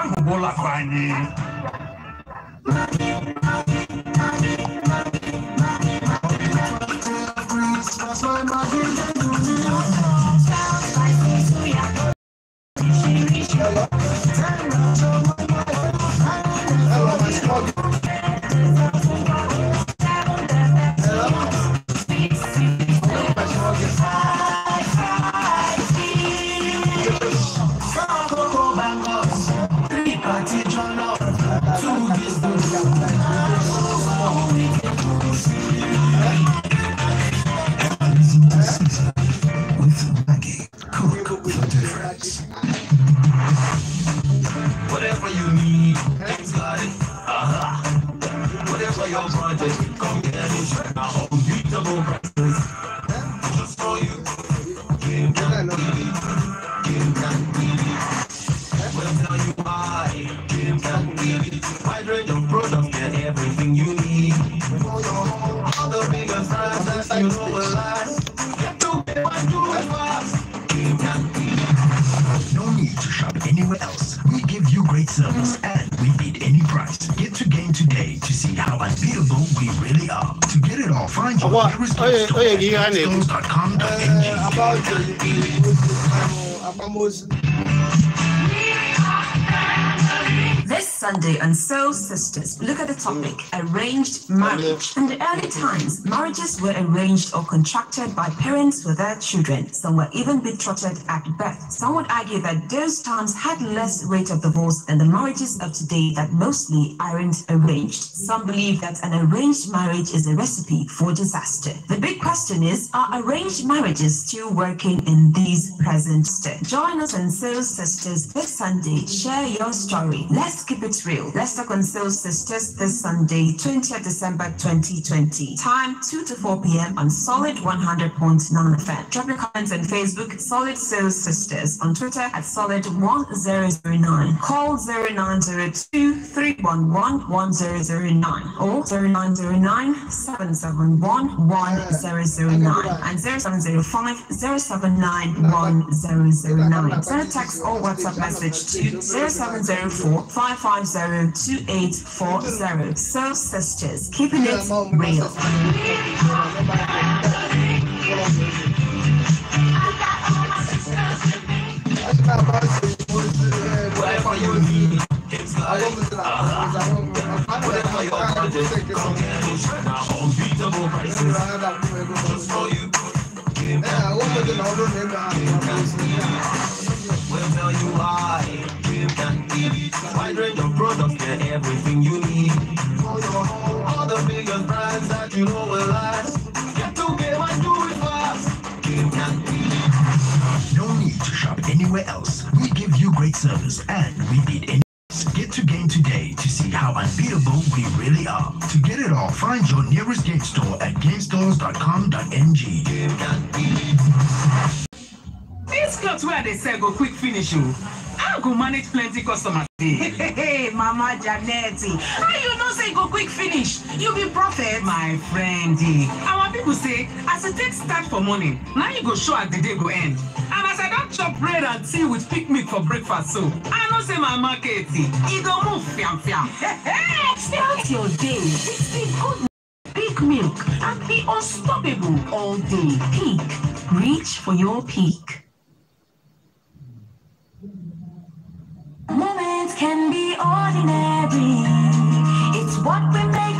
ahụbụlakwa anyị That's why my behind Uh, about the, the, the, the, Sunday. And so, sisters, look at the topic mm. arranged marriage. Mm. In the early times, marriages were arranged or contracted by parents with their children. Some were even betrothed at birth. Some would argue that those times had less rate of divorce than the marriages of today that mostly aren't arranged. Some believe that an arranged marriage is a recipe for disaster. The big question is are arranged marriages still working in these present days? Join us and so Sisters this Sunday. Share your story. Let's keep it Israel. Leicester Council Sisters this Sunday, 20th December 2020. Time 2 to 4 p.m. on Solid 100.9 FM. Drop your comments on Facebook, Solid Soul Sisters, on Twitter at Solid 1009. Call 0902 311 1009 or 0909 771 1009 and 0705 079 1009. Send a text or WhatsApp message to 0704 55 2840. Soul Sisters, keeping it real. Whatever you need, it's like, uh, whatever you. you Wide range of products, everything you need. your, all the biggest brands that you know will last. Get to Game and do it fast. Game No need to shop anywhere else. We give you great service and we need any. Get to game today to see how unbeatable we really are. To get it all, find your nearest game store at gamestores.com.ng. This cloth where they sell go quick finish you. Oh. I go manage plenty customers. Hey, Mama Janetti. how you know say go quick finish? You be prophet. My friend, eh. our people say, as it takes start for morning, now you go show at the day go end. And as I don't chop bread and tea with pick meat for breakfast, so I know say my market, it eh, go move fiam fiam. Start your day with the good big milk and be unstoppable all day. Peak, reach for your peak. Moments can be ordinary. It's what we make.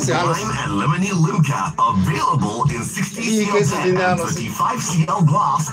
fíjese, a los... and Lemony Limca, available in 60 cl and 35 CL Gloss.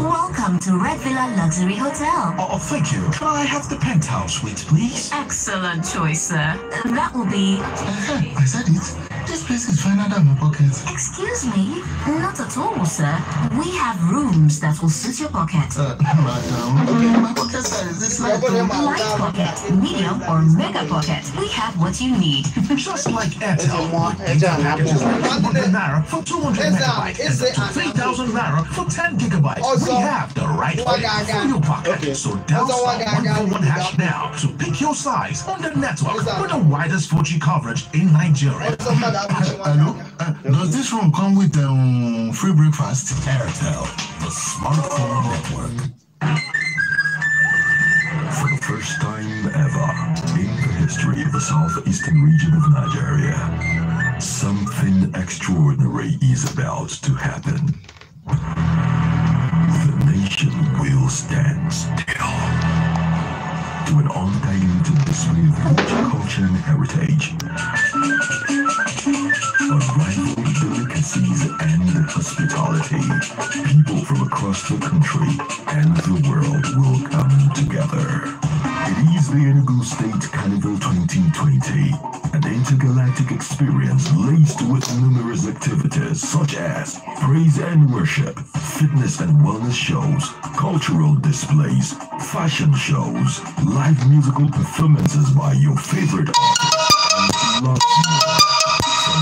Welcome to Red Villa Luxury Hotel. Oh, oh, thank you. Can I have the penthouse suite, please? Excellent choice, sir. That will be... Uh, I said it space is finer than my pocket. Excuse me? Not at all, sir. We have rooms that will suit your pocket. Uh, my um, pocket mm, light pocket, medium, or mega pocket. We have what you need. Just like Airtel, one packages like 200 naira for 200 megabytes and 3,000 naira for 10 gigabytes. Oh, we have the right way oh, for your pocket. So dial oh, one four one hash now to pick your size on the network with the widest 4G coverage in Nigeria. Hello? does this room come with um, free breakfast? Airtel, the smartphone network. For the first time ever in the history of the southeastern region of Nigeria, something extraordinary is about to happen. The nation will stand still to an undiluted display of rich culture and heritage of delicacies and hospitality, people from across the country and the world will come together. It is the Enugu State Carnival 2020, an intergalactic experience laced with numerous activities such as praise and worship, fitness and wellness shows, cultural displays, fashion shows, live musical performances by your favorite artists,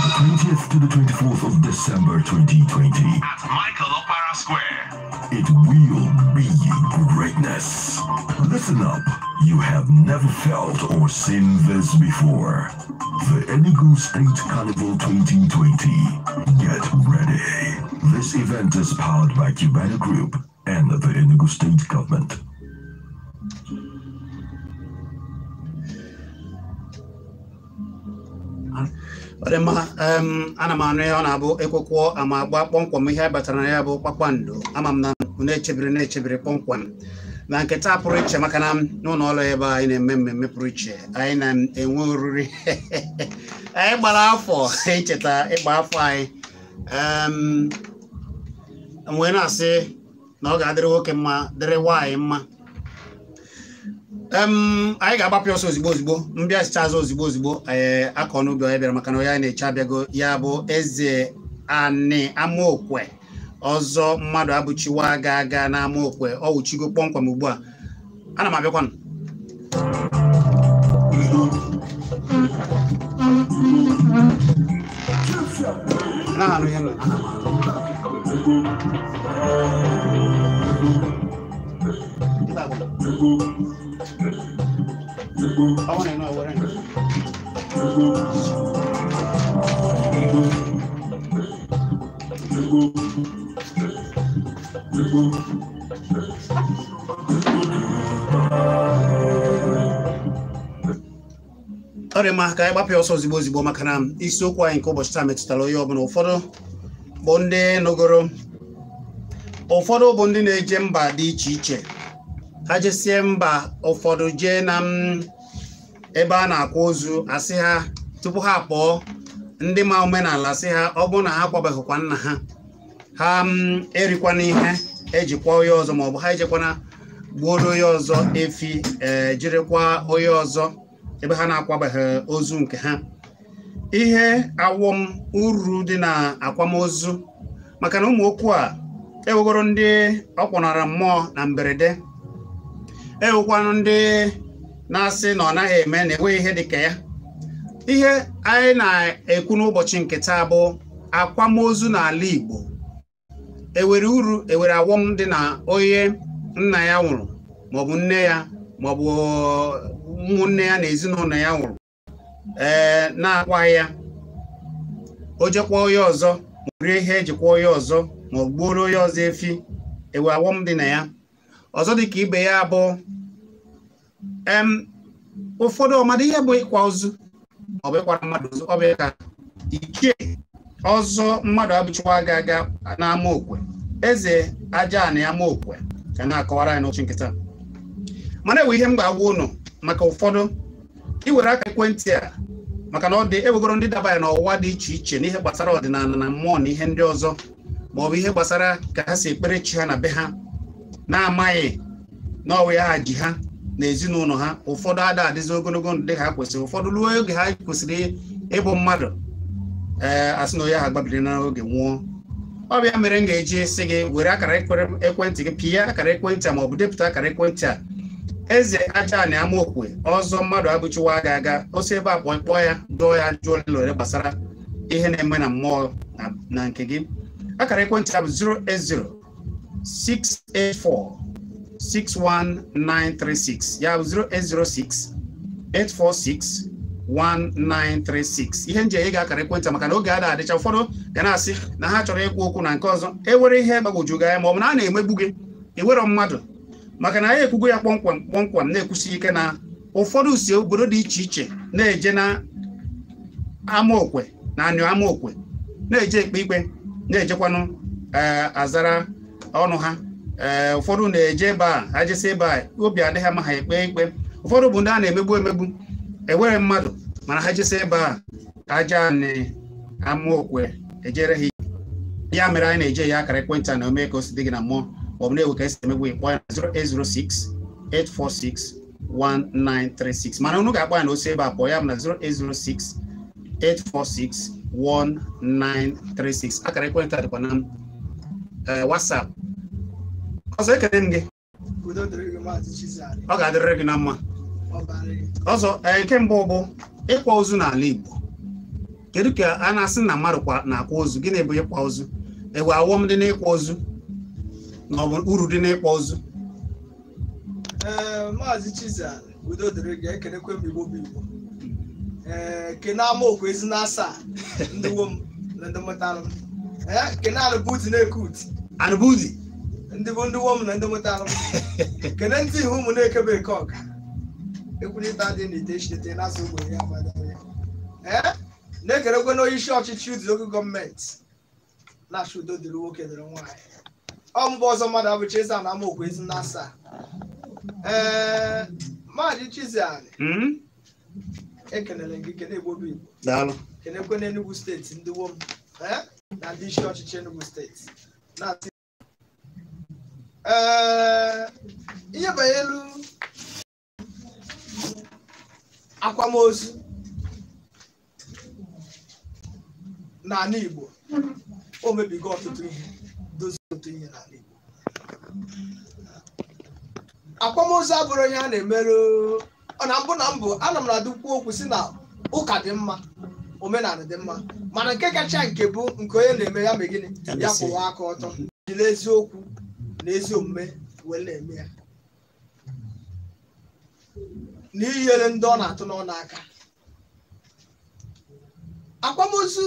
the 20th to the 24th of December 2020 at Michael Opera Square. It will be greatness. Listen up. You have never felt or seen this before. The Enugu State Carnival 2020. Get ready. This event is powered by Cubana Group and the Enugu State Government. ọ dị mma ana m anụ ihe ọ na-abụ ekwekwo ama agba kpọmkwem ihe batara na ya bụ kpakpando ama m na na-echebiri na-echebiri kpọmkwem na nketa pụrụ iche maka na n'ụlọ ọrụ ebe anyị na-eme mmemme pụrụ iche anyị na-enwe oriri anyị gbara afọ icheta ịgba afọ anyị wee na-asị na ọ ga-adịrị nwoke mma dịrị nwaanyị mma anyị ga-agbapụ ọsọ ozigbo ozigbo mbịa sicha azụ ozigbo ozigbo ee akọ n'ubi onye bịara maka na onye na-eche abịago ya bụ eze ani amaokwe ọzọ mmadụ abụchiwa ga aga na amaokwe ọ ugbu a ana m abịakwanụ ọrịa want ka anyị ọsọ ozigbo ozigbo maka na isiokwu anyị nke ụbọchị taa metụtara onye ọbụla ụfọdụ bụ ndị nụgoro ụfọdụ bụ ndị na-eje mba dị iche iche ha jesie mba ụfọdụ jee na mm, ebe a na-akwa ozu asị ha tupu ha kpọọ ndị ma omenala sị ha ọ bụrụ na ha akwabeghịkwa nna ha ha mm, erikwana ihe ejikwa onye ọzọ maọbụ ha ejekwana gbuoro onye ọzọ efi e, jirikwa onye ọzọ ebe ha na-akwabeghị ozu nke ha ihe awọm uru dị na akwamozu maka na ụmụ okwu a ewegoro ndị ọkpọnara mmụọ na mberede ewukwanụ ndị na-asị na ọ naghị eme na enweghị ihe dịka ya ihe anyị na-ekwu n'ụbọchị nketa bụ akwamozu na ala Igbo ewere uru ewere awọm dị na onye nna ya nwụrụ maọbụ nne ya maọbụ ụmụnne ya na ezinụlọ ya nwụrụ ee na akwa ya o jekwa onye ọzọ ma ihe ejikwa onye ọzọ ma onye ọzọ efi ewe awọm dị na ya ọzọ dị ka ibe ya bụ em ụfọdụ ọmadụ ihe bụ ịkwa ozu ọbụ ịkwara mmadụ ozu ọ ka ike ọzọ mmadụ abụchiwa ga aga n'ama okwe eze aja na ama okwe ka na-akọwara anyị n'ochi nkịta mana ewe ihe m ga-agwa ụnụ maka ụfọdụ iwere aka ekwentị a maka na ọ dị ewegoro ndị dabanya n'ọwụwa dị iche iche n'ihe gbasara ọdịnala na mmụọ na ihe ndị ọzọ ma ọ bụ ihe gbasara ka ha si ekpere chi ha na be ha na-amaghị na ọwa ya ji ha na ezinụlọ ha ụfọdụ ada adịzi ogologo ndị dị ka ha kwesịrị ụfọdụ ruo oge ha kwesịrị ịbụ mmadụ ee asị na onye ha gbabiri n'oge nwụọ ọ mere m ga-eji sị gị were akara ekwentị gị pịa akara ekwentị a ma ọ bụ depụta akara ekwentị a eze aja na amaokwe ọzọ mmadụ abụchiwa aga aga osi ebe a kpọọ ya dụọ ya jụọ lere gbasara ihe na-eme na mmụọ na nke gị akara ekwentị a bụ 0S0. 684 61936 ya 0806 846 1936 ihe nje ga-akara ekwentị maka na oge a na-adịcha ụfọdụ ga na-asị na ha chọrọ ịkwụ okwu na nke ọzọ ewere ihe gbagwoju gị anya ma ọ bụ na a na-emegbu gị ewero mmadụ maka na anyị ekwugo ya kpọmkwam kpọmkwam na-ekwusi ike na ụfọdụ si obodo dị iche iche na-eje na amaokwe na anyụ amaokwe na-eje ekpe ikpe na-ejekwanụ eh, azara ọnụ ha eh, ụfọdụ na-eje ebe a ha ebe a obi adịghị ama ha ekpe ikpe ụfọdụ bụ ndị a na-emegbu emegbu ewere mmadụ mana ha jesi ebe a ka aja na-ama okwe ejere ha ya mere anyị na-eje ya akara ekwentị a na ome ka o si dị gị na mmụọ maọbụ na-ewe ka esi emegbu ịkpọ ya na 0806 846 1936 mana unu ga-akpọ ya na osi ebe a pụọ ya bụ na 0806 846 1936 akara ekwentị a dịkwa na m Eh, WhatsApp ọzọ ekele m gị ọ ga-adịrịrị gị na mma ọzọ nke mbụ bụ ịkwa ozu n'ala Igbo kedu ka a na-asị na mmadụ na-akwa ozu gịnị bụ ịkwa ozu ewe awọm dị n'ịkwa ozu na ọ bụ e uru dị n'ịkwa ozu eh, maazị Chizal udo dịrị gị ekelekwe m Igbo bụ Igbo ee eh, kene amaokwu ezi na asaa ndị wo m na ndị mụtara m ee, alụ bụ utu na-eke arbuzi ndị bụ ndị wọm na ndị nweta m kedu ndị ihu ụmụ na-ekebe eke ọka ekwurịta dị n'ite chite ụgbọ ogbenye ya ee na-ekerekwe n'oyishi ọchịchị ụdị oge gọọmenti na-achụ udo dịrị nwoke dịrị nwaanyị ọ mgbe ọzọ mmadụ abụcha ezi na amaokwu ezi na asaa ee maadị Chizzy Ani hmm? ekelere gị kene egbobi igbo kenekwe n'Enugu steeti ndị wom na ndị isi ọchịchị Enugu steeti na uh, ihe elu akwamozu n'ala Igbo o mebigo ọtụtụ ihe dozie ọtụtụ ihe n'ala Igbo akwamozu abụrụ onye a na-emerụ ọ na mbụ na mbụ ana m na-adụkwu okwu si na ụka dị mma omenala dị mma mana nke kacha nke bụ nke onye na-eme ya mee gịnị ya kwụwa aka ọtọ jiri eziokwu na ezi omume wee na-eme ya na ndị ọ na-atụ n'ọnụ aka akwamozu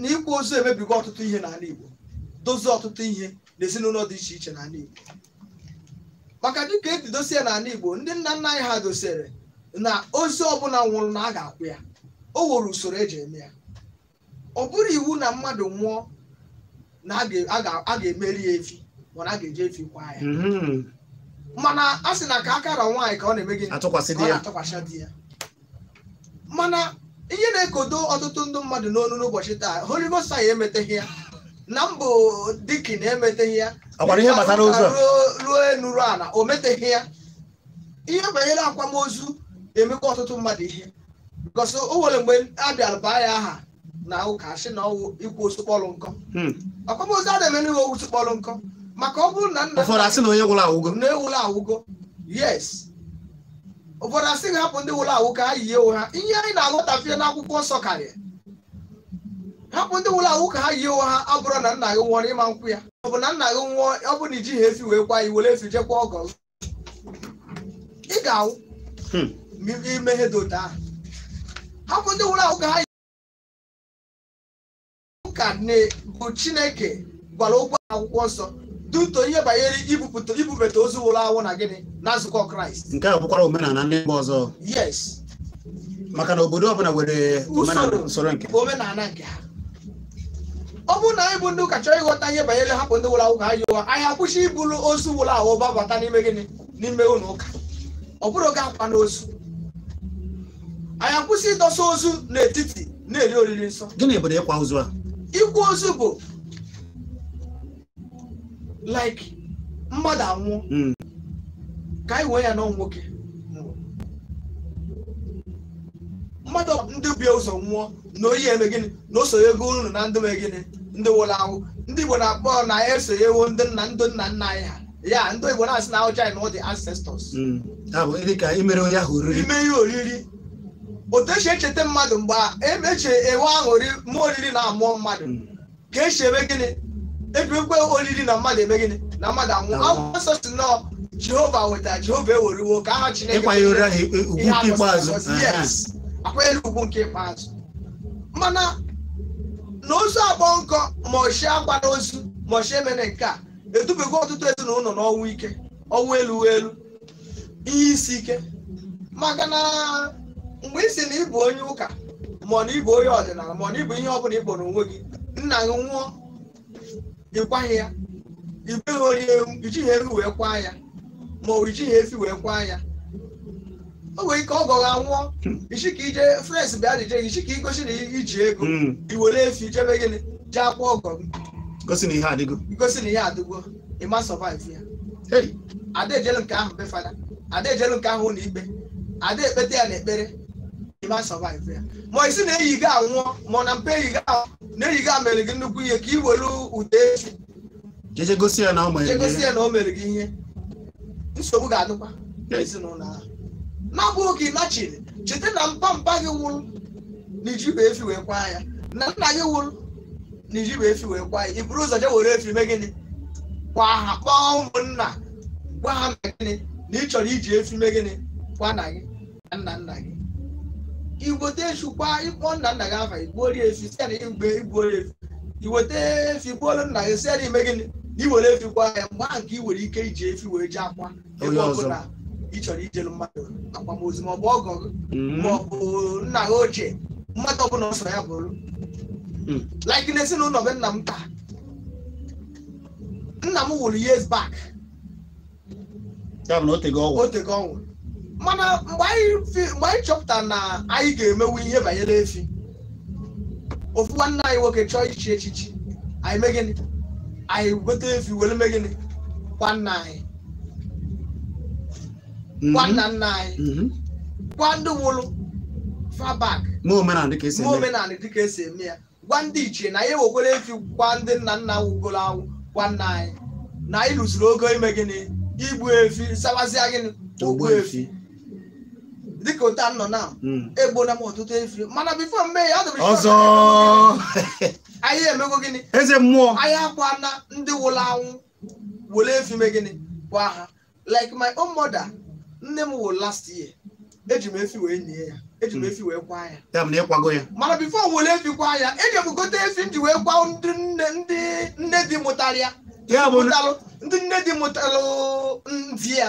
na ịkwa ozu emebigo ọtụtụ ihe n'ala Igbo dozie ọtụtụ ihe n'ezinụlọ dị iche iche n'ala Igbo maka dịka esi dosie n'ala Igbo ndị nna nna anyị ha dosere na ọ ọbụla nwụrụ na a ga-akwụ ya o nwere usoro eji eme ya ọ bụrụ iwu na mmadụ nwụọ na a ga-emeri ya efi mana a ga-eji efi kwa ya mm-hmm. mana a sị na ka akara nwaanyị ka ọ na-eme gị atụkwasị di ya mana ihe na-ekodo ọtụtụ ndị mmadụ n'onu n'ụbọchị taa holivosai emeteghị ya na mbụ na emeteghị ya ruo enuru ala o meteghị ya ihe banyere akwamozu emekwa ọtụtụ mmadụ ihe gọsọ o nwere mgbe a bịara baa ya aha na ụka si na ọwụ ikwu osikpọlụ nkọ hmm. akwamozu a na-eme n'iwe osikpọlụ nkọ maka ọ bụrụ na nna ụfọdụ asị na onye wụrụ awụgo na ewụrụ awụgo yes ụfọdụ asị ga hapụ ndị wụrụ awụ ka ha yie onwe ha ihe anyị na-aghọtafie n'akwụkwọ nsọ karịa hapụ ndị wụrụ awụ ka ha yi ewu ha abụrụ na nna gị nwụọ n'ịma nkwụ ya ọ bụ na nna gị nwụọ ọ bụ na ijighị efi wee kwa iwere efi jekwa ọgọ ị ga-awụ hmm. ma imeghe dota ahụ hapụ ndị nwụrụ ahụ ka ha ụka bụ chineke gwara okwu akwụkwọ nsọ duto ihe banyere ibubata ozu nwụrụ anwụ na gịnị na nzukọ kraịst nke a bụkwara omenala ndị mba ọzọ yes maka na obodo ọbụla nwere usoro omenala nke ha ọ bụ na anyị bụ ndị ụka chọọ ịghọta ihe banyere hapụ ndị nwụrụ anwụ ka ha yiwa anyị akwụsị ibulu ozu nwụrụ ahụ babata n'ime gịnị n'ime ụlọ ụka ọ bụrụ oge akwa n'ozu anyị akwụsị ịdọsa ozu n'etiti na-eri oriri nsọ gịnị bụ ịkwa ozu a Ikwu ozu bụ like mmadụ anwụọ hmm. ka anyị wee ya n'ọ nwoke mmadụ ndị bie ụzọ nwụọ na oyi eme gịnị na osonye ego unu na ndị mee gịnị ndị nwụrụ anwụ ndị Igbo na-akpọ na ya e esonyewo ndị nna ndị nna nna anyị ha ya ndị Igbo na-asị na ụja na ọ dị ancestors hmm. ime ihe oriri otu esi echeta mmadụ mgbe emechi enwe aṅụrị ma oriri na amụọ mmadụ mm. ka esi eme gịnị ekpekwe oriri na mmadụ eme gịnị na mmadụ anwụ akwụkwọ nsọ si n'ọ jehova wetara jehova eweriwo ka aha chineke e, e, akwanyere nke ikpeazụ mana na ozu agbọ nkọ ma oshi agbara ozu ma oshi emere nke a edubego ọtụtụ ezinụlọ n'ọnwụ ike ọnwụ elu elu ihe isi ike maka na. mgbe ị si na ịbụ onye ụka ma na ịbụ onye ọdịnala ma na ịbụ ihe ọ bụla ịkpọrọ onwe gị nna gị nwụọ ịkwaghị ya ibeghị onye ijighị eru wee kwa ya ma ọ ijighị efi wee kwa ya o nwere ike ọ gọghị anwụọ ichi ka ije frens bịa dije gị ka igosi na iji ego hmm. iwere efi jebe gịnị ji akwa ọgọ gị gosi na ihe adịgo gosi na ihe adịgo ịma sọvaiv ya ada ejelu nke ahụ be fada ada ejelu nke ahụ ụlọ ikpe ada ekpete ya na ekpere you might ya ma isi na-eyi gị anwụọ ma na mpe eyi gị na-eyi gị mere gị nnukwu ihe ka ị were ụda efi jegosi ya na o mere gị ihe nsogbu ga-adịkwa ezinụlọ ahụ na-abụghị ka ị lachiri cheta na mpampa gị wụrụ na iji bụ efi wee kwa ya na nna gị wụrụ na iji bụ efi wee kwa ya iburu ụzọ je were efi mee gịnị kwa ha kpọọ ụmụnna gwa ha mee gịnị na ị chọrọ iji efi mee gịnị kwa na gị na nna nna gị iweta esukwa ịkpọ nna nna gị afa igbuo efi site na mgbe igbuo efi iweta efi gbuolu nna gị site na ime gịnị na iwere efi kwa ya mgbe ahụ ka ị nwere ike iji efi wee jee akwa ebe ọbụla ị chọrọ ijelu mmadụ akwamozu ma ọ bụ ọgọ mm-hmm. ma ọ bụ nna gị ochie mmadụ ọbụla ọsọ ya bụrụ mm. like n'ezinụlọ be nna m taa nna m wụrụ years back otego ọnwụ mana mgbe anyị chọpụta na anyị ga-emewu ihe banyere efi ofu nwanne anyị nwoke chọọ ichi echichi anyị mee gịnị anyị weta efi were mee gịnị gwa nna anyị mhm. gwa nna nna anyị mhm. gwa ndị nwụrụ fabak ma omenala dịka esi e eme ya gwa ndị ichie na anyị ewekwere efi gwa ndị nna nna wugoro awụ gwa nna anyị na anyị lụsiri oge ime gịnị igbu efi sabazia gịnị ogbu efi dịka otu a nọ na hmm. egbona m ọtụtụ efiri mana bifo mee ya dịbịrị ọzọ anyị emego gịnị eze mmụọ anyị akwa na ndị wụrụ anwụ wele were efime gịnị kwa ha like my own mother nne m wụrụ last year eji m efi wee nye ya eji m hmm. efi wee kwa ya ya na ịkwago ya mana bifo wele efi kwa ya eji m gote efi m ji wee kwa ndị nne dị mụtara ya ndị nne dị mụtara ndị ya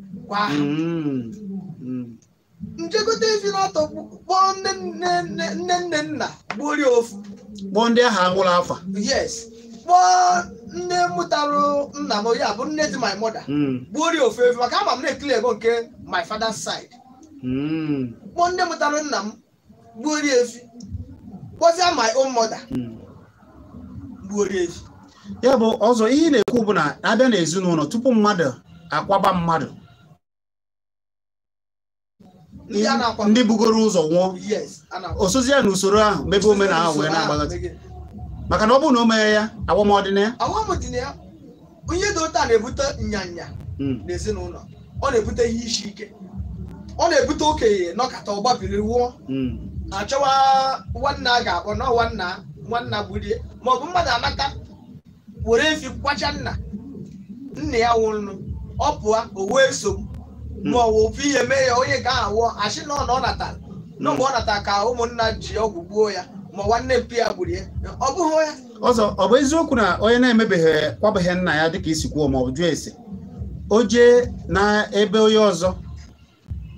kwa aha hmm. njegote ezi n'ọtọ kpọọ nne nne nna gbuorie ofu kpọọ ndị ahụ agwụla afa yes kpọọ nne mụtara nna m ya bụ nne dị my mother hmm. gbuorie ofu efu maka ama m na-ekiri ego nke my father's side hmm. kpọọ nne mụtara nna m gbuorie efi kpọzie my own mother gbuorie ezi. ya bụ ọzọ ihe ị na-ekwu bụ na abịa n'ezinụlọ tupu mmadụ akwaba mmadụ ndị bugoro ụzọ nwụọ osozi ya na usoro ahụ mebe omenala wee na-agbaghazi maka na ọ bụrụ na o mee ya agbamọdịna ya onye dị ụta na-ebute nyanya hmm. n'ezinụlọ ọ na-ebute ihe isi ike ọ na-ebute okenye nọkata ọgbabiri wụọ hmm. achọwa nwanna a ga-akpọ na nwanna nwanna gburie maọbụ mmadụ anata were efi kwacha nna nna ya nwụrụ ọ pụọ o wee sogbu maọwụ ofu ihe mee ya onye ga-awụ achị na ọ natara na mgbe ọ natara ka ụmụnna ji ọgwụ gbuo ya ma nwanne mpi ya gburu ya ọ bụghị onye. ọzọ ọ bụ eziokwu na onye na-emebeghị kwabeghị nna ya dịka isi kwuo ma ọ bụ jụọ ese o jee na ebe onye ọzọ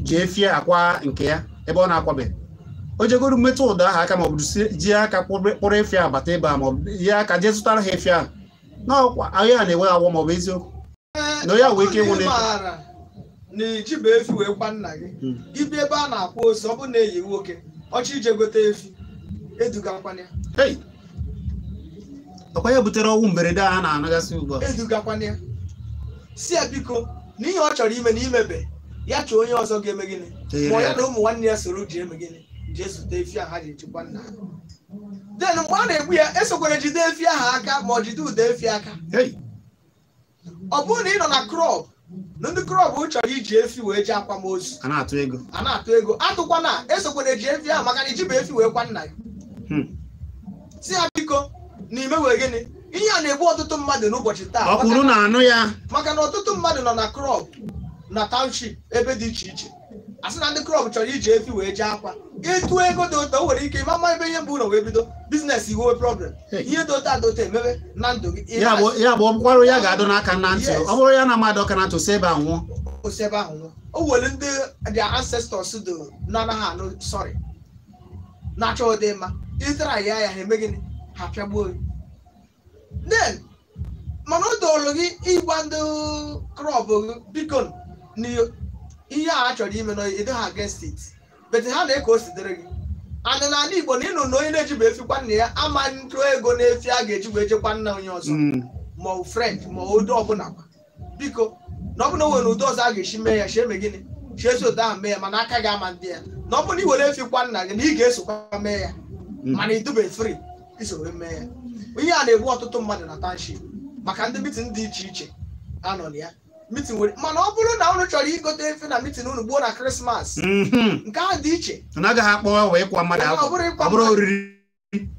ji fie akwa nke ya ebe ọ na-akwabeghị o jegoro mmetụ ụda aha aka maọbụ ọ ji aka kpụrụ efi abata ebe a ma ọ bụ ya aka jee zụtara ha efi ahụ na ọkwa ahịa na-enwe agwọ ma eziokwu eh, na onye wee ike ịnwụ na na iji bụ efi wee kwa nna gị ibi hmm. ebe a na-akpọ ose ọ bụ na eyi nwoke ọchị ije gote efi eduga kwana ya ọkwa ya butere ọnwụ mberede a na-anagasị ugbu a edugakwana ya si ya biko n'ihi ọ chọrọ ime na imebe ya chọọ onye ọzọ ga-eme gịnị ma ya na ụmụ nwanne ya soro ji eme gịnị jee zute efi a ha ji echekwa nna den mgbe a na-egbu ya esokwere jide efi ahụ aka ma ọ jide ụda efi aka ọ bụrụ na ị nọ na krọb. ndị krọb chọrọ iji efi wee ji akwamozu a na-atụ ego a na-atụ ego atụkwa na esokwana eji efi ahụ maka na iji bụ efi wee kwa nna ya. Hmm. si ya biko n'ime wee gịnị ihe a na-egbu ọtụtụ mmadụ n'ụbọchị taa ọkwụrụ na anụ ya maka na ọtụtụ mmadụ nọ na krọb na township ebe dị iche iche a na ndị krọb chọrọ iji efi wee ji akwa ịtụ ego dị ụtọ nwere ike ịma ịmama ebe ihe mbụ ụlọ wee bido biznes iwe problem ihe dị ụtọ adịụtọ emebe na ndụ gị ya bụ ọrụ ya ga-adụ n'aka na ntị ọ bụrụ ya na mmadụ ọka na ntị si ebe a nwụọ osi ebe ahụ nwụọ o nwere ndị dị ancestors dị n'anaghị anaghị anụ sọrị na-achọ ụdị mma ịtara ya ya ha eme gịnị ha pịagbuo gị then mana o dolu gị ịgba ndị krọb gị biko na ihe a chọrọ ime na ịdị ha against bete ha na-eke o sitere gị anụ na ala igbo na ịnụ na onye na-ejiba efikwa nna ya ama ntụ ego na-efi a ga-eji wee jekwa nna onye ọzọ ma ọ french ma ụdị ọbụla biko na ọbụla nwere ụdị ọzọ a ga-esi mee ya chee me gịnị chee si otu ahụ mee ya mana aka gị ama ndị ya na ọ bụrụ na were efi nna gị na ị ga-esokwa mee ya mana ị dube fri isoro mee ya onye a na-egbu ọtụtụ mmadụ na township maka ndị biti dị iche iche anọ na ya mitin were mana ọ bụrụ na ụnụ chọrọ igote efe na mitin unu gbuo na krismas mhm. nke ahụ dị iche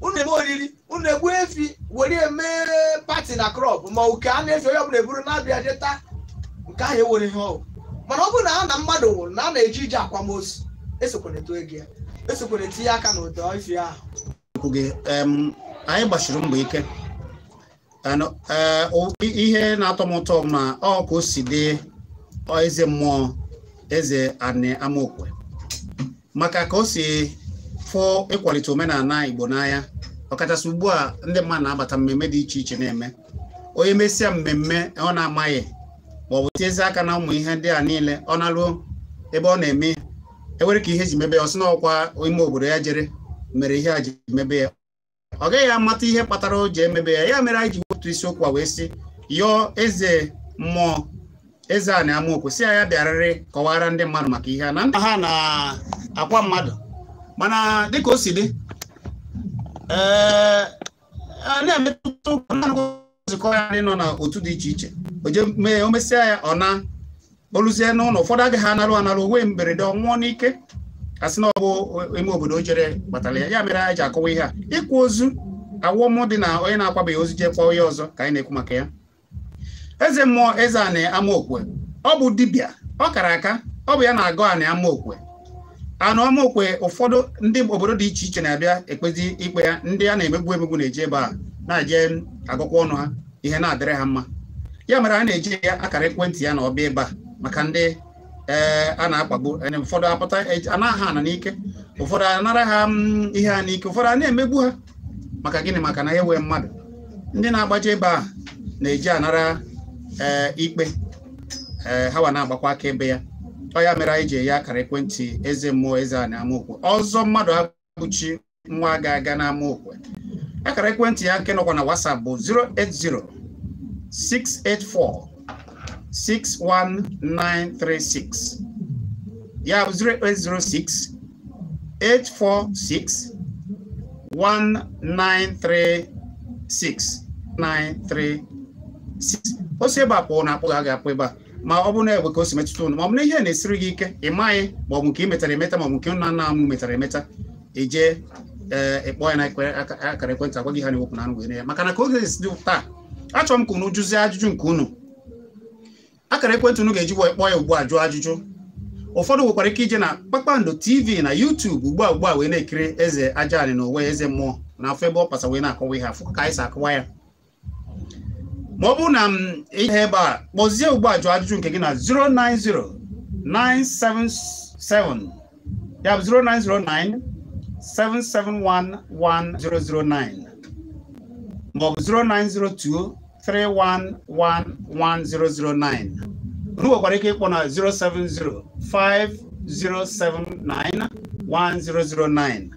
unu eme oriri unu egbu efi were emere pati na krọp ma oke a na-efe onye ọbụla eburu na-abịa jeta nke ahụ ewere ihe ọgwụ mana ọ bụrụ na ha na mmadụ nwụrụ na a na-eji ije akwamozu esokwere eto ego ya esokwere tinye aka n'ụdọ ife ahụ anyị gbachiri mbọ ike Eh, ihe na-atọ m ụtọ ma ọ ka o si dị eze mmụọ eze anị amaokwe maka ka o si fụ ịkwalite omenala Igbo n'anya ọkachasị ugbu a ndị mmadụ na-abata mmemme dị iche iche na-eme onye mesịa mmemme ọ na-amaghị ma ọ bụ tiezie aka na ụmụ ihe ndị a niile ọ na ebe ọ na-eme e nwere ka ihe e ji mebe ya ọ sị na ọkwa ime obodo ya jere mere ihe a ji mebe ya ọ gaghị amata ihe kpatara o ji emebe ya ya mere anyị ji otu isiokwu a wee sị yọọ eze mmụọ eze a na-ama okwu si ya bịarịrị kọwara ndị mmadụ maka ihe a na nna ha na-akwa mmadụ mana dịka o si dị ee na-emetụta nzukọ ya ndị nọ n'otu dị iche iche o mesịa ya ọ na oluzie n'ụlọ ụfọdụ agaghị analụ analụ onwe mberede ọnwụọ n'ike sị na ọ bụ ime obodo o jere kpatara ya ya mere anyị ji akọwa ihe a ịkwụ ozu awọmụ dị na onye na-akwabeghị ozi jee kwa onye ọzọ ka anyị na-ekwu maka ya eze mmụọ eze anị amaokwe ọ bụ dibịa ọ kara aka ọ bụ ya na-agụ anị amaokwe anụ amaokwe ụfọdụ ndị obodo dị iche iche na-abịa ekpezi ikpe ya ndị a na-emegbu emegbu na-eji ebe a na-eje agụkwa ọnụ ha ihe na-adịrị ha mma ya mere a na-eji ya akara ekwentị ya na ọbịa ebe a maka ndị Eh, a na-akpagbu eh, ụfọdụ apụta eh, anaghị ana n'ike ụfọdụ anara ha mm, ihe a n'ike ụfọdụ a na-emegbu ha maka gịnị maka na nwee mmadụ ndị na-agbaje ebe a na-eji anara ee ikpe ee hawa na-agbakwa aka ebe ya ọ ya mere anyị ji enye akara ekwentị eze mmụọ eze a na amaokwe ọzọ mmadụ abụchi nwa ga-aga na-amụ amaokwe akara ekwentị ya nke nọkwa na WhatsApp bụ 080 684 61936 ya bụ 6 846 1936 936 osi ebe a kpụrụ na akpụ ga apụ ebe a ma ọ bụrụ na egbe ka o si metụta unu ma ọ bụ na ihe na-esiri gị ike ị maghị ma ọ bụ nke ị metara emeta ma ọ bụ nke nna nna m metara emeta eje ee eh, ya na akara ekwentị agwa gị ha na-ewepụ na anụ were ya maka na ka oge esi dị taa achọrọ m ka unu jụzie ajụjụ nke unu akara ekwentị unu ga-eji wee kpọọ ya ugbu a ajụjụ ụfọdụ nwekwara ike ije na kpakpando tv na youtube ugbu a ugbu a wee na-ekiri eze ajaanị na onwe eze mmụọ na afọ ebe ọ wee na-akọwa ihe afọ ka anyị ya ma ọ bụrụ na m mm, ihe ebe a kpọzie ugbu a ajụjụ nke gị na 090977 ya bụ 3111009 unu kwara ike ịkpọ na 07050791009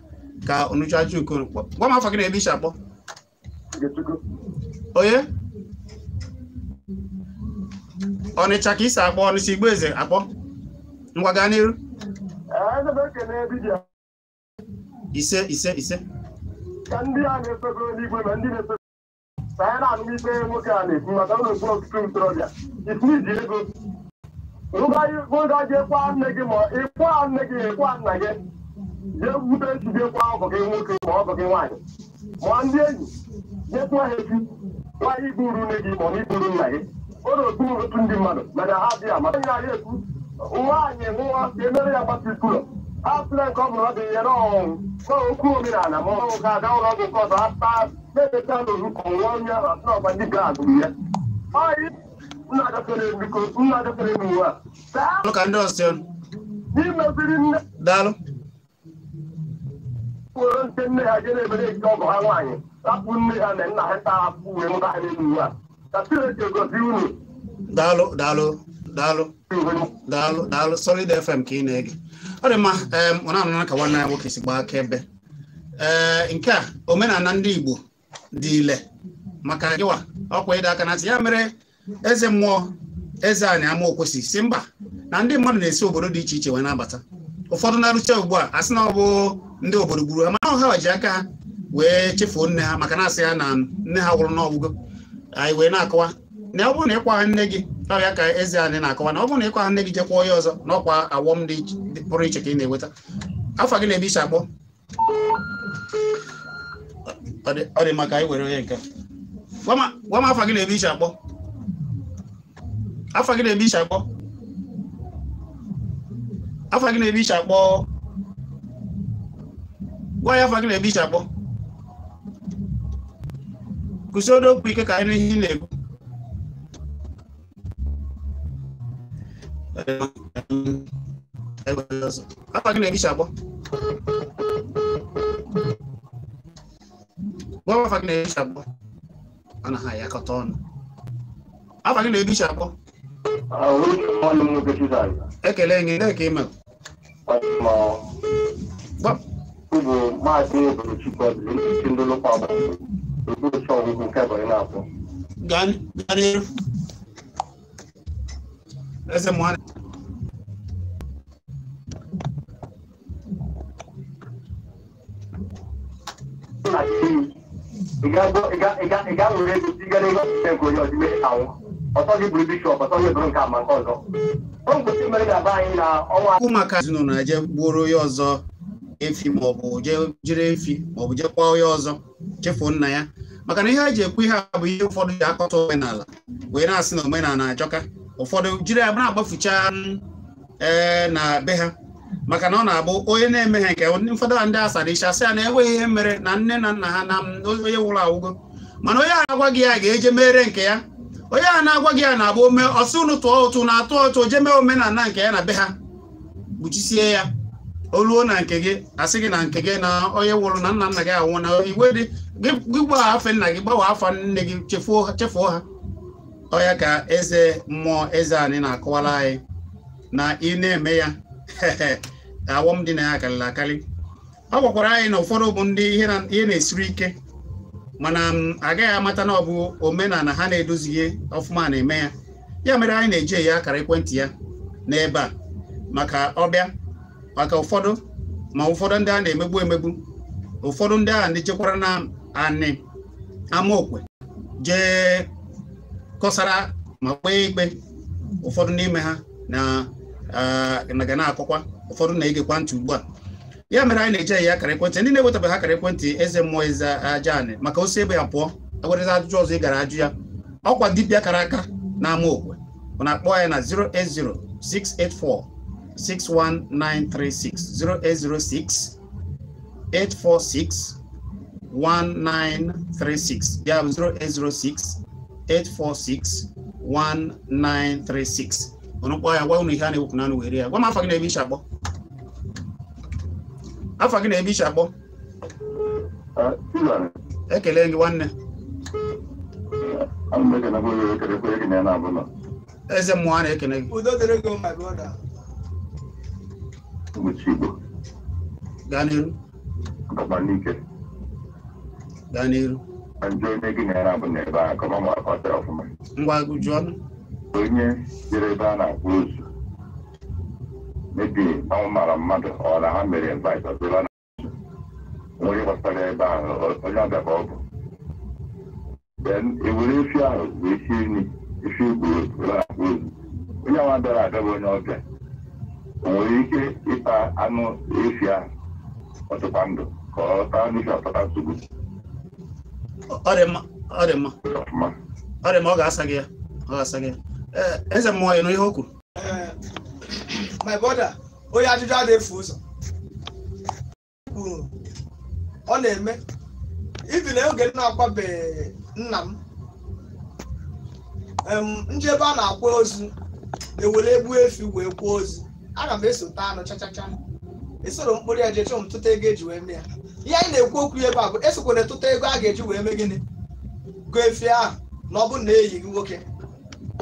ka unuchuachuko gwa m afọ gị na elisha akpọ onye ọnịcha ka isi akpọ ọnịcha igbo eze akpọ ngwa gaa n'iru ise ise ise ka ndị a na-efego n'igwe ma ndị na ka anyị na-anụ ikpe nwoke a na-ekwu maka ụlọ okpu ọtụtụ ntorobịa iji ego ụga jekwa nne gị ma ịkwa nne gị ịkwa nna gị jee bute ejije kwa ọgọ gị nwoke ma ọgọ gị nwaanyị ma ndị enyi nyekwa ha echi nwaanyị iburu nne gị ma ọ iburu nna gị ụlọ okpu otu ndị mmadụ mana ha dị ama onye na-arị ekwu nwaanyị nwa ka emere ya gbata ikwulọ ha sịrị nke ọ bụla ọ dị ya n'ọnwụ n'okwu omenala ma ọ nwoke aga ụlọ ọgwụ nke ọzọ ha na-edeta n'orukọ nwa onye ahụ ọba dịka agụụ ya ka ndị ọzọ daalụ were nke nne ha jere ebere nke ọgụ ha nwaanyị rapụ nne ha na nna ha taa apụ wee ha a ka chineke gozi unu daalụ daalụ daalụ daalụ daalụ solid fm ka ị na-ege ọ dị mma ọ na-anụ ka nwanne ya nwoke si gbaa aka ebe ee nke a omenala ndị igbo dị ile maka gịwa ọkwa ịdọ aka na ntị ya mere eze mmụọ eze anyị ama okwesị si mba na ndị mmadụ na-esi obodo dị iche iche wee na-abata ụfọdụ na-arụcha ugbu a asị na ọ bụ ndị obodo gburu ha mana ọha ji aka wee chefuo nne ha maka na-asị ya na nne ha gwụrụ n'ọgwụgwọ anyị wee na-akọwa na ọ bụrụ na ịkwa nne gị ọrịa ka eze anyị na-akọwa na ọ bụrụ na ịkwa ha nne gị jekwuo onye ọzọ na ọkwa awọm dị pụrụ iche ka ị na-enweta afọ gị na-ebicha akpọ ọ dị maka anyị were onye nke gwa m afọ gị na-ebe iche akpọ afọ gị na-ebe iche akpọ afọ gị na-ebe iche akpọ gwa ya afọ gị na-ebe iche akpọ kwụsị okwu ike ka anyị n'ihe na-ekwu afọ gị na-ebe iche akpọ Wafa kinaisha hapo. Ana haya katona. Hapa kinaisha hapo. Ekele ngine kima. Ba. Kubo ma de bu chiko de tindo lo pa ba. Kubo cho ku ka na po. Gan Thank you. ị ga-alụrụ ego nke onye ọtọ ọtọ nke nke ọzọ o na maka ezinụlọ na-eje gbuoro onye ọzọ efi maọbụ jere efi maọbụ jekwa onye ọzọ chefuo nna ya maka na ihe a ji ekwu ihe a bụ ihe ụfọdụ ji akọta omenala wee na-asị na omenala na achọka ụfọdụ jiri ya na-agbafucha ee eh, na be ha maka na ọ na-abụ onye na-eme nke ụfọdụ a ndị asara icha sị ya na enweghị ihe mere na nne na nna ha na onye nwụrụ awụgo mana onye a na-agwa gị ya ga-eje mere nke ya onye a na-agwa gị ya na-abụ ome ọsị unu tụọ ụtụ na-atụ ụtụ jee mee omenala nke ya na be ha kpuchisie ya oluo na nke gị asị gị na nke gị na onye nwụrụ na nna nna gị anwụ na igwe dị gị gbawa afọ nna gị gbawa afa nne gị chefuo ha ọya ka eze mmụọ eze anyị na-akọwara anyị na ị na-eme ya awọm dị na ya karịrị akarị ọ gwakwara anyị na ụfọdụ bụ ndị ihe na-esiri ike mana agaghị amata na ọ bụ omenala ha na-edozighị ọfụma na-eme ya ya mere anyị na-eji eyi akara ekwentị ya n'ebe a maka ọbịa maka ụfọdụ ma ụfọdụ ndị a na-emegbu emegbu ụfọdụ ndị a na-echekwara na anị amaokwe jee kọsara ma kpee ikpe ụfọdụ n'ime ha na eh, ga na-akọkwa ụfọdụ na-egekwa ntị ugbu a ya mere anyị na-eje ya akara ekwentị ndị na-ewetabeghị akara ekwentị eze mmụọ eze aja anị maka osi ebe ya pụọ agwarịza ajụjụ ọzọ ị gara ajụ ya ọkwa dibịa kara aka n'ama okwe ọ na-akpọ anyị na 080 684 61936 08068461936 ya bụ ọnụkpọ ya gwa ụnụ ihe a na-ewepụ na anụ were ya gwa m afọ gị na-ebe iche akpọ afọ gị na-ebe iche akpọ ekele gị nwanne eze mmụọ a na-ekele gị gaa n'iru gaa n'iru ngwa gụjuo ọnụ onye jere ebe a na-akpụ ụzọ mebi ọnwụ mara mmadụ ọ na ha mere invite ọbụla na onye gbasara ebe ahụ onye ọbịa ka ọ bụ then ewere efi ahụ wee sie nri efi egburu were akpụ ụzọ onye nwa bịara adọba onye ọbịa o nwere ike ịta anụ efi ahụ ọtụkwa ndụ ka ọ taa n'ihi ọtọta nsogbu ọ dị mma ọ dị mma ọ ga-asa gị ya ọ ga-asa gị ya eze mmụọ ya n'ihe ihe o kwuru my brother onye ajụjụ a na-efu ụzọ kwuru ọ na-eme ibi na oge na-akwabeghị nna m njebe a na-akwa ozu ewere egbu efi wee kwuo ozu aga m esota anụ chachacha esoro mkpụrụ ya jechọ m tụta ego eji wee mee ya ihe anyị na-ekwu okwu ebe a bụ esokwana tụta ego a ga-eji wee mee gịnị gụọ efi ahụ na ọ bụ na eyi gị nwoke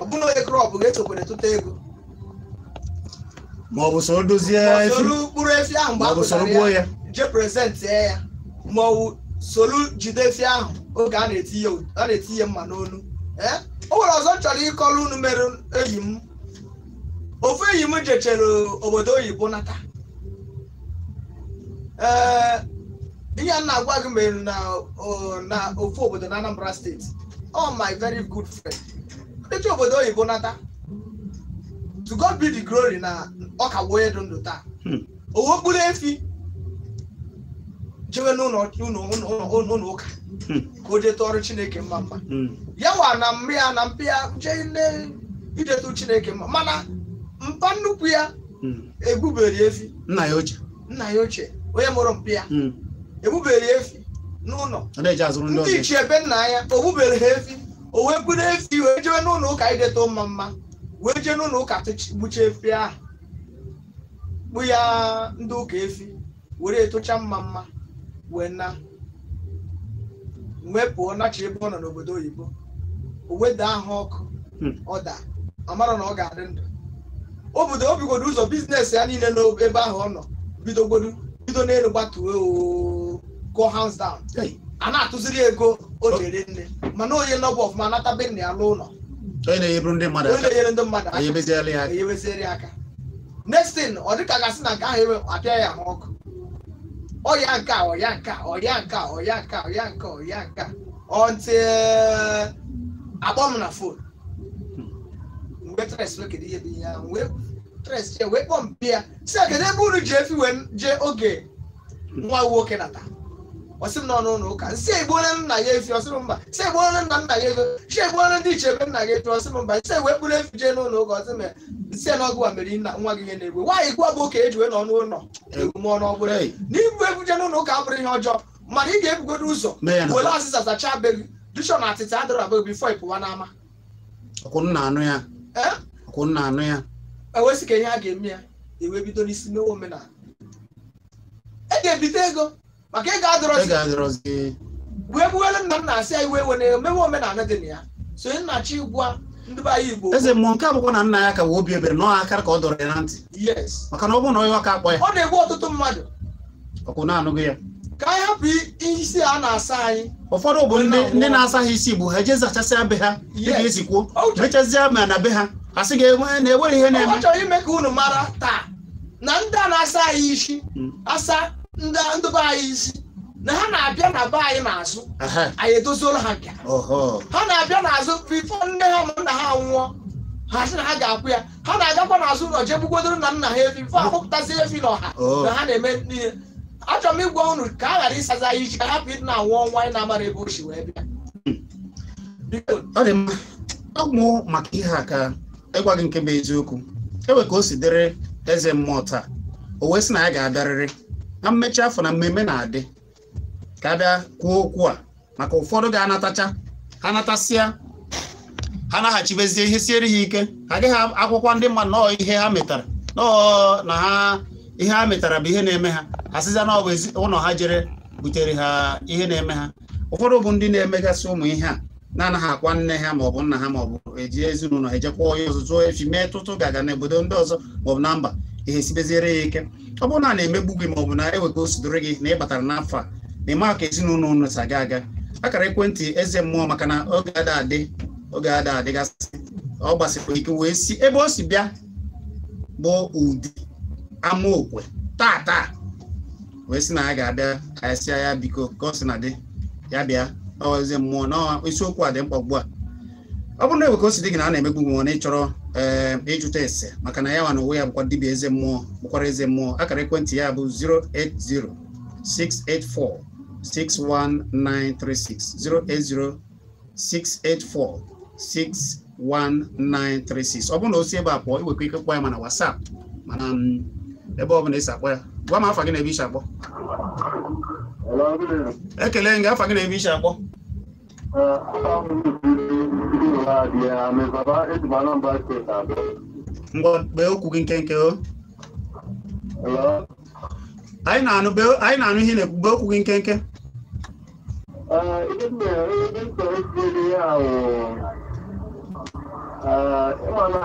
ọbụna onye krọp ga-echekwara tụta ego ma ọ bụ soro dozie soro mkpụrụ efi ahụ mgbe apụtara ya jee prezentị ya ma ọ bụ soro jide efi ahụ oge a na etinye mma n'olu. E? o nwere ọzọ chọrọ ịkọrọ unu mere eyi m ofu eyi m jechere obodo oyibo nata ee ihe m na-agwa gị mere na ofu obodo na Anambra steeti ọ my very good friend eji obodo oyibo nata to God be the glory na ọka bụ onye dị ndụ taa hmm. owe okpuru efi jewe n'ụlọ ụka hmm. ka o detụ ọrụ chineke mma mma hmm. ya wa na mma ya na mpịa jee idetụ chineke mma mana mpa nnukwu ya Egbubere efi nna ya oche. nna ya oche onye mụrụ mpi ya egbuberi efi n'ụlọ ndị ichie ebe nna ya o ha efi o wee buru efi wee jebe n'ụlọ ụka ideto mma mma wee jee n'ụlọ ụka gbucha efi ahụ kpụ ya ndị ụka efi were etocha mma mma wee na mgbe pụọ nachi ebe ọ nọ n'obodo oyibo o weda ha ọkụ hmm. ọ daa amara na ọ ga-adị ndụ obodo obigodo ụzọ biznes ya niile n'ebe ahụ ọ nọ bido n'elu gbatuo ooo go hands down a na-atụziri ego o jere nne mana onye nọbụ ọfụma nata be nna ya n'ụlọ onye na-enyeburu ndị mmadụ aka onye ndị mmadụ aka ya aka nestin ọ dịka gasị na nke ahụ ewe apịa ya ha ọkụ ọya nke a ọya nke a ọya nke a ọya nke a ọya nke a ọya nke a ọntị eh, akpọ m na fon mgbe tres wee kedu ihe bụ ihe ahụ wee tres chee wee kpọọ mpi ya si kedu ebe unu ji efi wee jee oge nwa nwoke nata ọsị m n'ọnụ ụlọ ụka nsị egbuola nna ya efi ọsị m mba nsị egbuola nna nna ya ego nsị egbuola ndị ichebe nna ya efi ọsị m mba nsị egwe kpụrụ efi jee n'ụlọ ụka ọsị m e, nsị n'ọgụ mere nna nwa gị ihe na-egbu nwaanyị gwa bụ ka ejiwe n'ọnụ ụlọ egbume ọnụ ọbụla n'ibu ebu jee n'ụlọ ụka abụrụ ihe ọjọọ mana ị ga-ebugodo ụzọ were ọsịsa sachaa be gị dishọn atịtị adịrọ abụ bifọ ịpụwa n'ama ya ewesị ka ihe a ga-eme ya ewe bido n'isi n'omenala e ego maka ị ga-adọrọzi wee gbuwele nna m na-asị ya iwe were emewe omenala dị na ya so nna chi gwa ndị be anyị Igbo eze mmụọ nke abụkwa na nna ya ka wee obi ebere n'ọha akara ka ọ dọrọ ya na ntị maka na ọ bụrụ na onye ọka akpọ ya ọ na-egbu ọtụtụ mmadụ ọkwụ na-anụghị ya ka anyị hapụ isi a na-asa anyị ụfọdụ bụ ndị na asa ha isi bụ ha eje zachasịa be ha dịka esi kwuo mechazịa ma na be ha a sị ga na-ewere ihe na-eme ọ chọrọ ime ka unu mara taa na ndị a na-asa anyị isi hmm. asa ndị ndị be anyị isi na ha na-abịa na be anyị n'azụ anyị edoziela ha nke ha na-abịa n'azụ bifo nne ha na nna ha nwụọ ha sị na ha ga-akwụ ya ha na-agakwa n'azụ ụlọ jee bugwodoro na nna ha efi fọ ahụpụtazi efi n'ọha oh. na ha na-eme niile achọrọ m ịgwa unu ka a ghara ịsaza anyị iji ka hapụ ịdị na-anwụ ọnwa anyị na-amara ebe o si wee bịa ọgwụ maka ihe a ka ịgwa gị nke bụ eziokwu ewe ka o si dịrị eze mmụọ taa o wee sị na ya ga-abịarịrị na mmechi afọ na mmemme na-adị ka bịa kwuo okwu a maka ụfọdụ ga-anatacha ha natasịa ha naghachibezie ihe siere ha ike ha agaghị akwụkwọ ndị mmadụ nọọ ihe ha metara nọọ na ha ihe ha metara bụ ihe na-eme ha asịza na ọ ụlọ ha jere butere ha ihe na-eme ha ụfọdụ bụ ndị na-emegasị ụmụ ihe a na-anaghị akwa nne ha maọbụ nna ha maọbụ eji ezinụlọ ejekwa onye ọzọ efi mee tụtụ gaga n'obodo ndị ọzọ maọbụ na mba ihe sibeziere ya ike ọ bụrụ na a na-emegbu gị ma ọ bụ na ewega osodoro gị na ị batara n'afọ a na ịma ka ezinụlọ ụnụ si aga aga akara ekwentị eze mmụọ maka na oge ada adị oge ada adịgasị ọ gbasịkwa ike wee si ebe o si bịa bụ ụdị amaokwe taa taa wee sị na ya ga-abịa ka ya sịa ya biko ka ọ sị na dị ya bịa ọ eze mmụọ na isiokwu a dị mkpa ugbu a ọ bụrụ na Ebuka gị na a na-emegbu nw na ịchọrọ ee eh, ịjụta ese maka na ya nwa na onwe ya bụkwa dibia eze mmụọ bụkwara eze mmụọ akara ekwentị ya bụ 080 684 61936 08068461936 ọ bụrụ na o si ebe a pụọ iwekwa ike kpọọ ya mana WhatsApp mana mm, ebe ọ bụla ịsa akpọ ya gwa m afa gị na ebe isi akpọ ekele gị afa gị na ebe isi akpọ uh, Mwa be oku kinkenke o. Hello. Ai na anu be ai na anu hine be oku kinkenke. Ah, ide me ide ko ide ya o. Ah, mana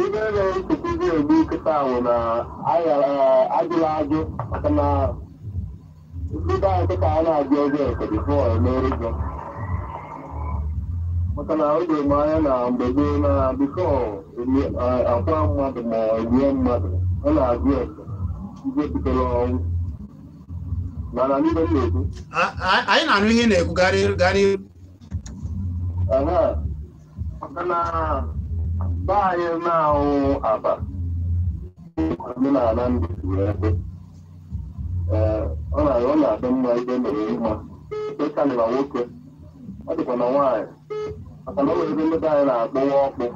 ide le ku ku de bu ka ta o na ai ajula aju kana Ibi da ka ta na ajo je ko before no reason. maka na oge m anya na mgbe gboo na biko akwa mmadụ ma rie mmadụ ọ na-agụ ese ihe butere ọnwụ mana n'ihe m na-ekwu anyị na-anụ ihe na-ekwu gari garị maka na ba anyị na-ahụ aba omenala ndị ebe ọ na-adị mma ihe mere mma ebe karịra nwoke ọ dịkwa na nwaanyị maka na o nwere ebe mmebe anyị na-akpụwa ọkpụ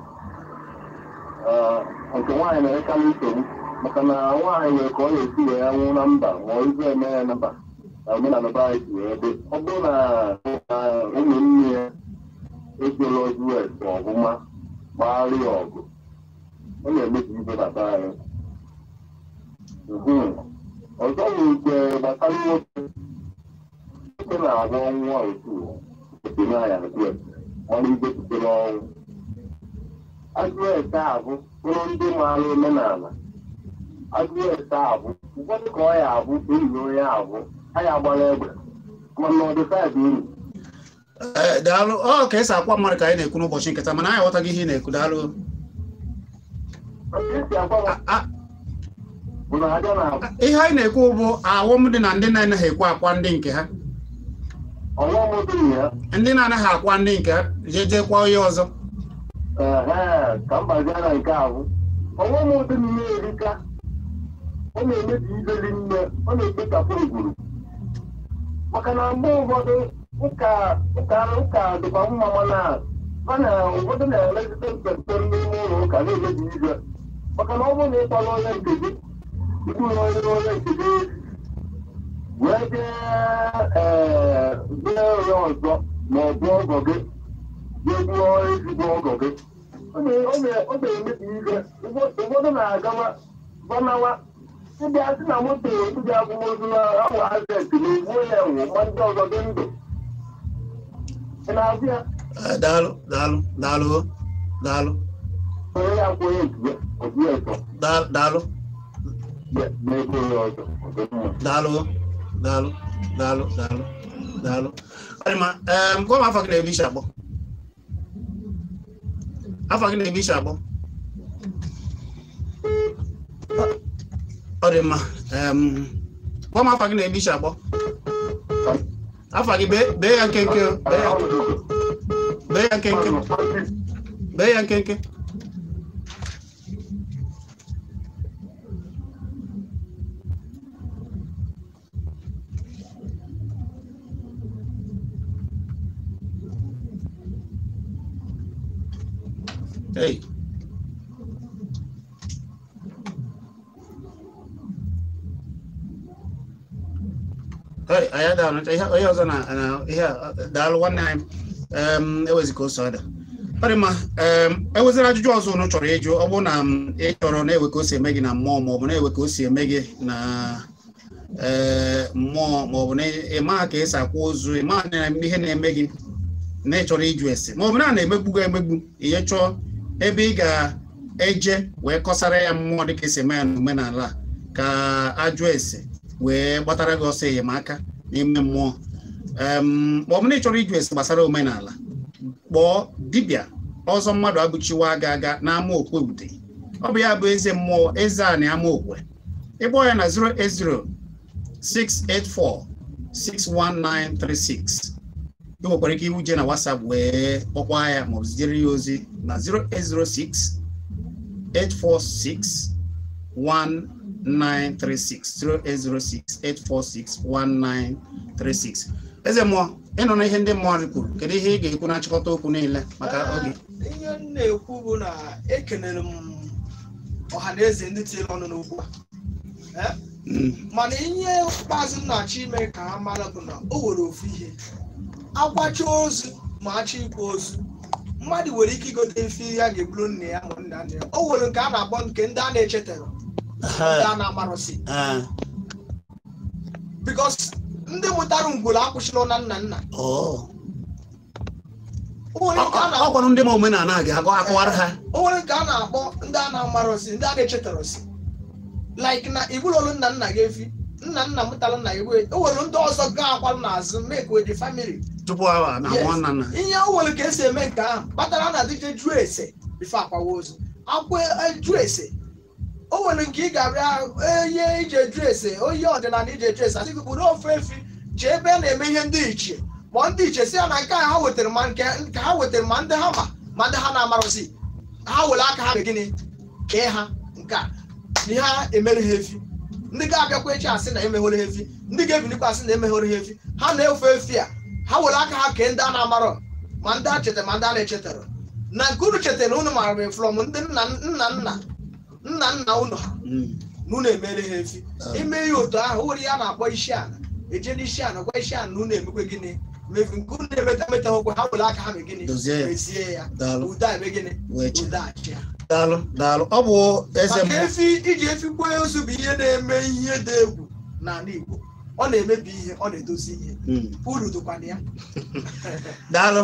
nke nwaanyị na ka nsogbu maka na nwaanyị nwere ka ọ na-esi wee ya nwụ na mba ma ọ izu eme ya na mba na omenala be anyị si wee dị ọ bụrụ na ụmụnne ya ezola us e, ọbụma gbagharịa ọgụ ọ na-emebi mbebata anyị ọzọ bụ nke gbasara nwoke nwoke na-agwọ nwa otu etinye anya na kwesị ọrụ igwe butere ọnwụ agụete a bụ bụrụ ndị maara omenala agụete a bụ ụfọdụ ka ọ ya abụ enyi onye abụ ha ya gbara egbe mana ọdịfaịbụ uru eh, daalụ ọ ka esi akwa mmadụ ka anyị na-ekwu n'ụbọchị nketa mana anyị aghọtaghị ihe ị na-ekwu daalụ ihe anyị na-ekwu bụ ahụm dị na ndị na-anaghị ekwe akwa ndị nke ha ndị na-anaghị akwa ndị nke jejekwa onye ọzọ ka mgbazia na nke ahụ ọnwụm ụdịrị ihe erika ọ na-emebi ibeli nne ọ na-ekpechapụ egburu maka na mgbe ụfọdụ ụka ụka dịkwa mma mana a na ụfọdụ na-elezite mpempe n'ime ụlọ ụka na-emebi ibe maka na ọ bụrụ na ịkpọrọ onye nke gị ịbụrụ onye onye nke gị wee jee ee onye ọzọ ma ọ bụ ọgọ gị jeruo ezigbo ọgọ gị ọ na-emebi ihe ụfọdụ na-agawa gbanawa, ndị asị na moto ndị abụmozu na ahụ azeti na-egbuo ya nwụ ma ndị ọzọ dị ndụ ị na-azụ ya daalụ daalụ daalụ daalụ onye ya akwụghị ọzọ daalụ daalụ daalụ daalụ daalụ daalụ daalụ ọ dị mma gụọ m afọ gị na-eme isi abụọ afọ gị na-eme isi abụọ ọ dị mma gụọ m afọ gị na-eme isi abụọ afọ gị bee ya nkenke bee ya nkenke bee ya nkenke Hey. Hey, ọzọ uh, uh, um, um, um, na ihe ọrị ma ajụjụ ọzọ unu chọrọ ịjụ na ị chọrọ na-ewe ka o si eme gị na mmụọ maọbụ na-ewe ka o si eme gị na mmụọ maọbụ ka esi ozu ihe na gị na a na-emegbu emegbu ebe ị ga-eje wee kọsara ya mmụọ dịka esi eme ya a ka ajụ ese wee gbatara gị ọsọ enyemaka n'ime mmụọ ma ọ ịchọrọ na ị chọrọ ịjụ ese gbasara omenala kpọọ dibịa ọzọ mmadụ abụchiwa aga aga n'ama okwe ude ọ bụ ya bụ eze mmụọ eze a na ama okwe ya na 080 684 61936 e nwekwara ike iwu jee na WhatsApp wee kpọkwa ya ma maọbụ zitere ya ozi na 0806 846 1936 eze mmụọ ịnọ na ihe ndị mmụọ kwuru kedu ihe ị ga-ekwu na nchịkọta okwu niile maka oge ihe m na-ekwu bụ na ekelere m ọha na eze ndị tinyere ọnụ n'okwu a hmm. mana ihe ikpeazụ m na-achọ ime ka ha mara bụ na o nwere ofu ihe akwacha ozu ma achọ ikwa ozu mmadụ nwere ike igote mfe ihe a ga-eburu nne ya ma nna nna ya o nwere nke a na-akpọ nke ndị a na-echetara ndị a na-amarụsị bikos ndị mụtara ngwuru akwụsịla na nna nna ọ gwara ndị ma omenala gị akọwara ha o nwere nke a na-akpọ ndị a na-amarụsị ndị a na-echetarụsị like na ibulolu nna nna gị efi nna nna mụtara nna gị wee o nwere ndị ọzọ ga akwa n'azụ make with the tupu awa na nwa nna nna ihe o nwere ka esi eme nke ahụ kpatara na adịje jụọ ese ife akwawa ozu akwa e, jụọ ese o nwere nke ị ga-abịa onye ije e jụ ese onye ọdịnala e ije jụ ese adịghị bụrụ ofe efi ji ebe a na-eme ihe ndị iche ma ndị iche si ya na nke ha wetara ma nke ha wetara ma ndị ha ma ma ndị ha na-amarụzi ha were aka ha gịnị kee ha nke a na ihe ha emere ha efi ndị ga-abịakwa echi asị na emeghere ha efi ndị ga-ebilikwa asị na emeghere ha efi ha na-efe efi a ha were aka ha kee ndị a na-amarọ ma ndị a chetara ma ndị a na-echetara na nke unu chetara unu mara flọm ndị nna nna nna nna nna unu ha na hmm. unu emere ha efi ah. ime ihe otu ahụ were ya na-akpọ isi ala eje n'isi ala gwa isi ala na unu emekwe gịnị mefu nke unu na-emeta emeta okwe ha were aka ha mee gịnị mezie ya ude eme gịnị ude Daalụ Daalụ ọ bụ eze maka efi iji efi gbuo ozu bụ ihe na-eme ihe dị egwu n'ala Igbo ọ na-emebi ihe ọ na-edozi ihe hmm. uru dịkwana ya daalụ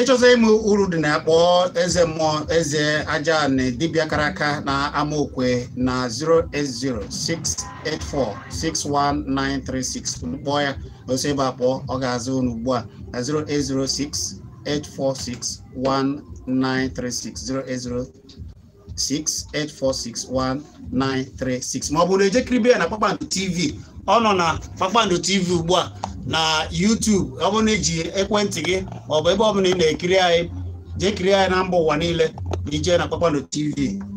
ịchọta ịmụ uru dị na akpọ eze mmụọ eze aja na dibịa kara aka na amaokwe na 08068461936 kpọọ ya osi ebe akpọ ọ ga-azụ unu ugbu a na 08068461936 080 07063631936 ma ọ bụ na ejekiribe ya na kpakpando tv ọ nọ na kpakpando tv ugbu a na YouTube ọ bụrụ na iji ekwentị gị ọ bụ ebe ọ bụla ị na-ekiri anyị jee anyị na mba ụwa niile na ije na kpakpando tv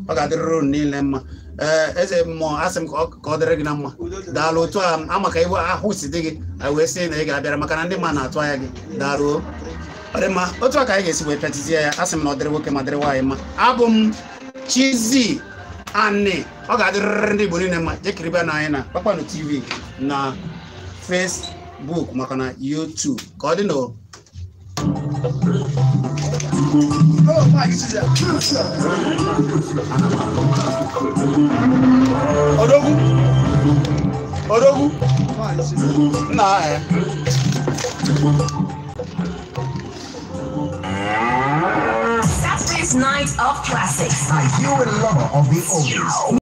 ọ ga-adịrịrị unu niile mma eh, eze mmụọ asị m ka ọ dịrị gị na mma daalụ otu a amaka iwe ahụ si dị gị anyị wee sị na ị ga-abịara maka na ndị mma na-atụ anya gị daalụ ọ dị mma otu a ka anyị ga-esi wee petịzie ya asị m na ọ dịrị nwoke ma dịrị nwaanyị mma abụ m chizi ani ọ ga-adịrịrị ndị igbo niile ma jekiribe na anyị na kpakpando tv na facebook maka na youtube ka ọ dị na odogwu odogwu nna ya Night of Classics. Are you a lover of the oldies?